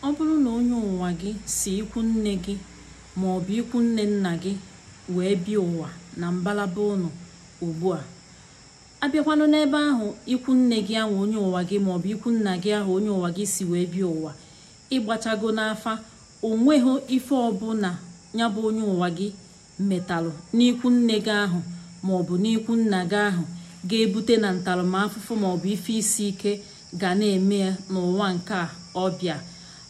ọ bụrụ na onye ụwa gị si ikwu nne gị ma ọ bụ ikwu nne nna gị wee bịa ụwa na mbalaba ụnụ ugbu a abịakwanụ n'ebe ahụ ikwu nne gị ahụ onye ụwa gị maọbụ ikwu nna gị ahụ onye ụwa gị si wee bịa ụwa ịgbachago n'afa onweghị ife ọbụla ya bụ onye ụwa gị metalụ n'ikwu nne gị ahụ maọbụ n'ikwu nna gị ahụ ga-ebute na ntaramahụhụ maọbụ ife isi ike ga na-eme n'ụwa nke ọbịa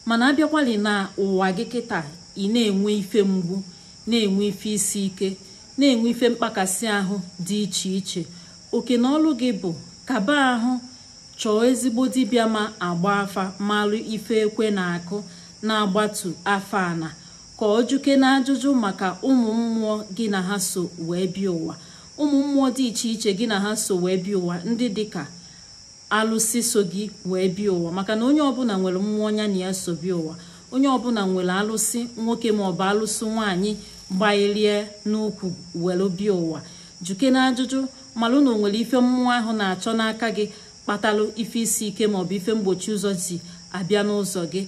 mana abịakwalị na ụwa gị kịta ị na-enwe ife mgbu na-enwe ife isi ike na-enwe ife mkpakasị ahụ dị iche iche oke na ọlụ gị bụ kaba ahụ chọọ ezigbo dibịa ma agba afa malụ ife ekwe na-akụ na-agbatu afa ana ka ọ juke na ajụjụ maka ụmụ mmụọ gị na ha so wee bịa ụwa ụmụ mmụọ dị iche iche gị na ha so wee bịa ụwa ndị dịka alụsị so gị wee bịa ụwa maka na onye ọbụla nwere mmụọ ọnya na ya so bịa ụwa onye ọbụla nwere alụsị nwoke maọbụ alụsị nwaanyị gbailie n'ukwu were bịa ụwa juke na ajụjụ malụ na o nwere ife mmụọ ahụ na-achọ n'aka gị kpatalụ ife isi ike maọbụ ife mgbochi ụzọ si abịa n'ụzọ gị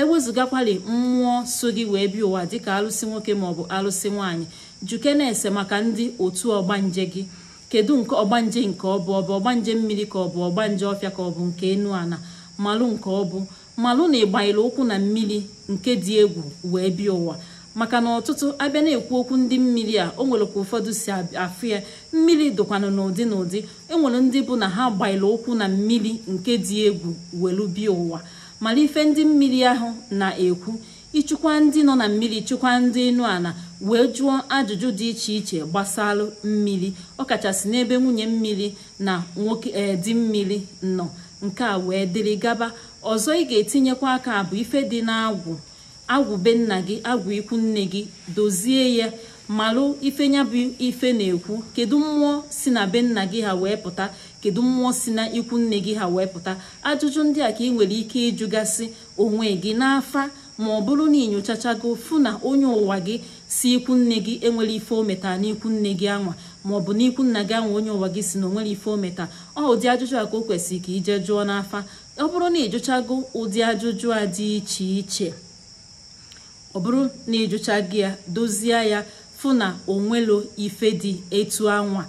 ewezụgakwali mmụọ so gị wee bịa ụwa dịka alụsị nwoke maọbụ alụsị nwaanyị juke na-ese maka ndị otu ọgbanje gị kedu nke ọgbanje nke ọ bụ ọgbanje mmiri ka ọ bụ ọgbanje ọfịa ka ọ bụ nke enu ana malụ nke ọ bụ malụ na ịgbanyere ụkwụ na mmiri nke dị egwu wee bịa ụwa maka na ọtụtụ abịa na-ekwu okwu ndị mmiri a o nwere ka ụfọdụ si afụ ya mmiri dụkwanụ n'ụdị n'ụdị enwere ndị bụ na ha gbanyere ụkwụ na mmiri nke dị egwu welu bịa ụwa mara ife ndị mmiri ahụ na-ekwu ịchịkwa ndị nọ na mmiri chụkwa ndị enu ala wee jụọ ajụjụ dị iche iche gbasalụ mmiri ọkachasị n'ebe nwunye mmiri na nwoke eh, di mmiri nọ nke a wee dịrị gaba ọzọ ị ga-etinyekwa aka bụ ife dị n'agwụ agwụ be nna gị agwụ ikwu nne gị dozie ya malụ ife bụ ife na-ekwu kedu mmụọ si na be nna gị ha wee pụta kedu mmụọ si na ikwu nne gị ha wee pụta ajụjụ ndị a ka ị nwere ike ịjụgasị onwe gị n'afa ma ọ bụrụ na inyochachago fụ na onye ụwa gị si ikwu nne gị enwere ife ometa metara n'ikwu nne gị anwa maọbụ n'ikwu nna gị anwa onye ụwa gị si na onwere ife ometa ọ ụdị ajụjụ a ka o kwesịrị ka ije jụọ n'afa ọ bụrụ na ịjụchago ụdị ajụjụ a dị iche iche ọ bụrụ na ịjụcha gị ya dozie ya fụ na onwelo ife dị etu anwa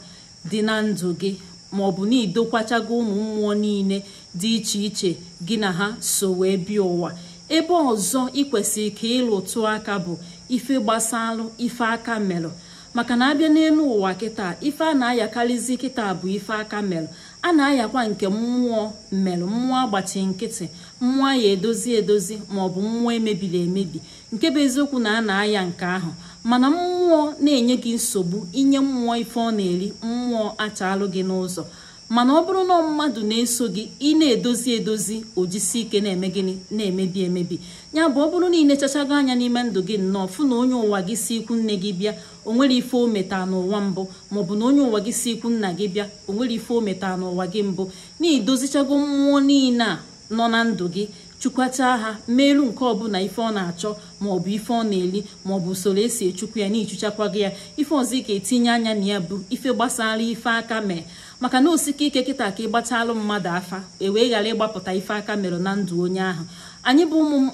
dị na ndụ gị maọbụ na idokwachago ụmụ mmụọ niile dị iche iche gị na ha so wee bịa ụwa ebe ọzọ ikwesịrị ka ịlụtụ aka bụ ife gbasalụ ife aka melụ maka na abịa n'elu ụwa kịta ife a na-ayakarịzi kịta bụ ife aka melụ a na-ayakwa nke mmụọ mmerụ mmụọ agbachi nkịtị mmụọ ya edozi edozi maọbụ mmụọ emebiri emebi nke bụ eziokwu na a na-aya nke ahụ mana mmụọ na-enye gị nsogbu inye mmụọ ife ọ na-eri mmụọ achalụ gị n'ụzọ mana ọ bụrụ na mmadụ na-eso gị ị na-edozi edozi ojisi ike na-eme gịnị na-emebi emebi ya bụ ọ bụrụ na ị na anya n'ime ndụ gị nnọọ fụ na onye ụwa gị si ikwu nne gị bịa o nwere ife ometa n'ụwa mbụ maọbụ na onye ụwa gị si ikwu nna gị bịa o nwere ife ometa n'ụwa gị mbụ na edozichago mmụọ niile a nọ na ndụ gị chukwachaa ha meelu nke ọbụla ife ọ na-achọ maọbụ ife ọ na-eli maọbụ usoro esi echukwu ya na gị ya ife ọzọ ike etinye anya na ya bụ ife gbasara ife aka mee maka na osike ike kịta ka gbatalụ mmadụ afa e wee ghara ịgbapụta ife aka mere na ndụ onye ahụ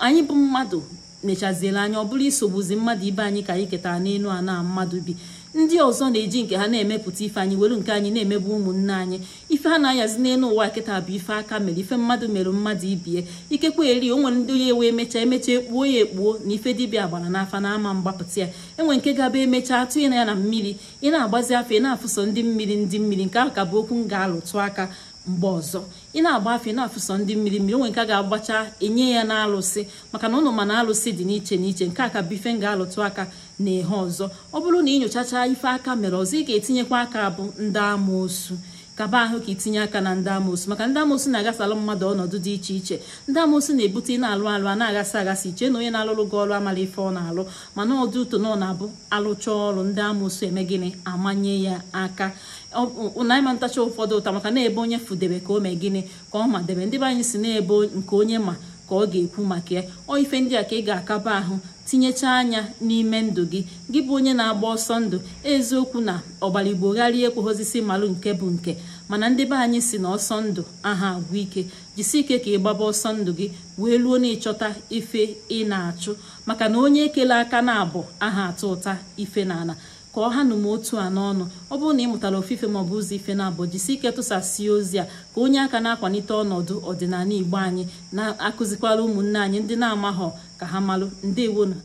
anyị bụ mmadụ mechaziela anya ọ bụrụ isogbuzi mmadụ ibe anyị ka anyị ketara n'elu ana mmadụ bi ndị ọzọ na-eji nke ha na-emepụta ife anyị were nke anyị na-emebu ụmụnne anyị ife ha na-ayazi n'elu ụwa kịta bụ ife aka mere ife mmadụ mere mmadụ ibie ikekwe eri o nwere ndị ya ewe emecha emecha ekpuo ya ekpuo na ife dibịa gbara n'afa na ama mgbapụta ya enwe nke gaba emecha atụnye na ya na mmiri ị na-agbazi afọ ị na-afụso ndị mmiri ndị mmiri nke ahụ ka bụ okwu m ga-alụtụ aka mgbe ọzọ ị na-agba afe na-afụsọ ndị mmiri mmiri onwe nke a ga-agbacha enye ya n'alụsị maka na ụnụ mana alụsị dị n'iche n'iche nke a ka bife m ga-alụtụ aka na ehe ọzọ ọ bụrụ na ị ife aka mere ọzọ ị ga-etinyekwa aka bụ ndị amoosu kaba ahụ ka itinye aka na ndị amosu maka ndị amoosu na-agasalụ mmadụ ọnọdụ dị iche iche ndị amoosu na-ebute ị na-alụ alụ a na agasị agasị iche na onye na-alụrụ gị ọrụ amala ife ọ na-alụ mana ọdụ ụtọ na ọ na-abụ alụcha ọrụ ndị amoosu eme gịnị amanye ya aka naịma ntacha ụfọdụ ụta maka na-ebe onye fudebe ka o mee gịnị ka ọ ma debe ndị be anyị si na ebe nke onye ma ka ọ ga-ekwu maka ya ọ ife ndị a ka ị ga-akaba ahụ tinyechaa anya n'ime ndụ gị gị bụ onye na-agba ọsọ ndụ eziokwu na ọgbaligboghara ekweghozisi malụ nke bụ nke mana ndị be anyị si na ọsọ ndụ aha agwụ ike jisi ike ka ị gbaba ọsọ ndụ gị wee luo na ịchọta ife ị na-achụ maka na onye ekele aka na abụ aha atụ ụta ife na ka ọ ha nụ otu a n'ọnụ ọ bụrụ na ị mụtara ofufe maọbụ ụzọ ife na-abụ jisi ike tụsasie ozi a ka onye aka na akwanite ọnọdụ ọdịnala igbo anyị na-akụzikwara ụmụnne anyị ndị na-amaghọ ka ha malụ ndewonu